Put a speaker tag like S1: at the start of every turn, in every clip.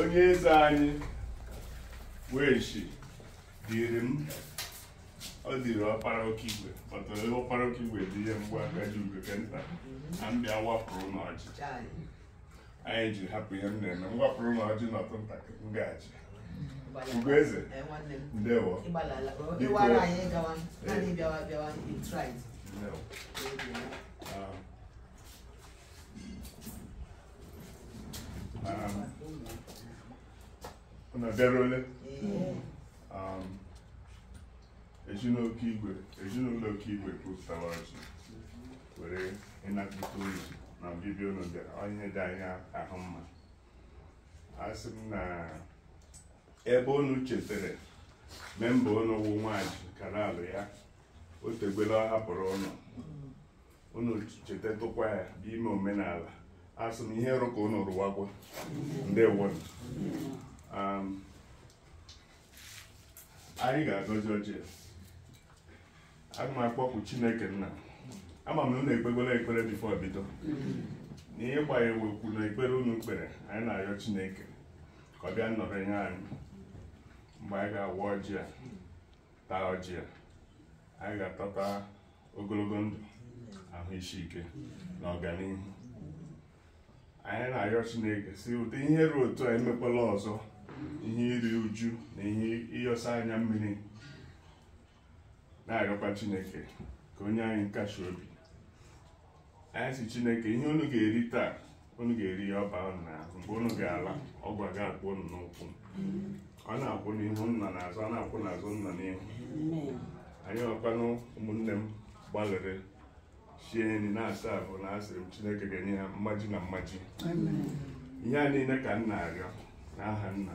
S1: onye eze anyị weshi dịrị m ọ dịrị ọkpara oke igwe kpọtara ọkpara oke igwe dị ihe mgbe agaji ugwe ke nta na mbịa wapụrụ n'ọjị anyị ji hapụ ihe m na-eme m wapụrụ n'ọjị n'ọtụ ntakịrị m gaji Ugoeze eh, ndewo biko ezinụlọ igwe ezinụlọ kwupụtara ọjị were ịnapụta unu na ọbịbịa unu ihe dị anya ahụ mma a sị m na ebe unu chetere memba unu wụ nwanyị kanalụ ya o tegbela ọ hapụrụ ụnụ unu cheta tụkwa ya n'ime omenala asị m ihe rụ ka unu rụwakwa ndewo um, anyị ga-agọzi ọjị aga m akpọkwu chineke nna ama m unu ekpegola ekpere bifo bido na ihe gbanye wekwu na ekpere unu kpere anyị na-arịọ chineke ka ọ bịa nnọrọ nye anyị mgbe anyị ga-agwa ọjị a taa ọjị a anyị ga-atọta ogologo ndụ ahụ isi ike na ọganihu anyị na-arịọ chineke si ụta ihe ruo otu a emekwala ọzọ ihe iri uju na ihe ịyọsa anya mmiri na-arịọkwa chineke ka onye anyị nkashi obi anyị si chineke ihe unu ga-eri taa unu ga-eri ya ọba na mgbe unu ga-ala ọgwa ga-akpọ unu n'ụkwụ a na-akwụ n'ihu nna n'azụ a na-akwụ n'azụ nna n'ihu anyị ọkwanụ ụmụnne m gbalịrị sie nri na-asa ahụ na asịrị m chineke ga-enye ha mmaji na mmaji ihe a niile ka m na-arịọ n'aha nna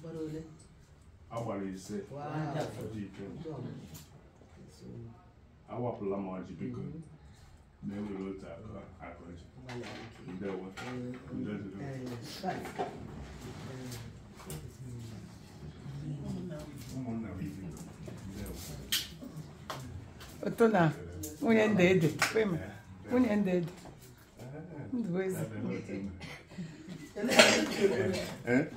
S1: gbara ole agbara ise awapụla m ọjị o na-ewere otu aka ọjị o ndewo ụmụnna m ibi ndewo ụtụ na nwunye ndị ede nwunye eh, eh. ndị ede ndụbụ eh, eze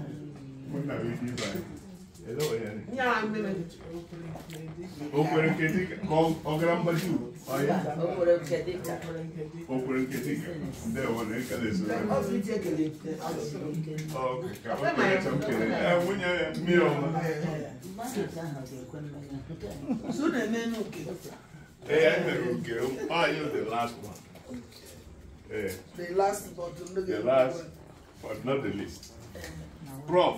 S1: O kwere nke dịka ọ gara mgbaji o kwere nke dịka ndị ọwụna ekele nwunye mmiri ọma ee ya mere oke anyị the last one ee eh. the last but not the least eh. prof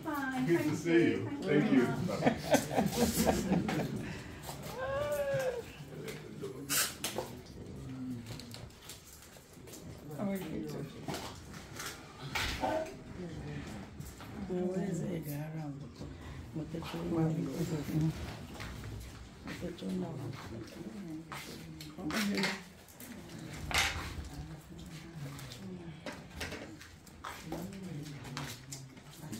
S1: Good Thank to see you. Thank you. you. Thank you.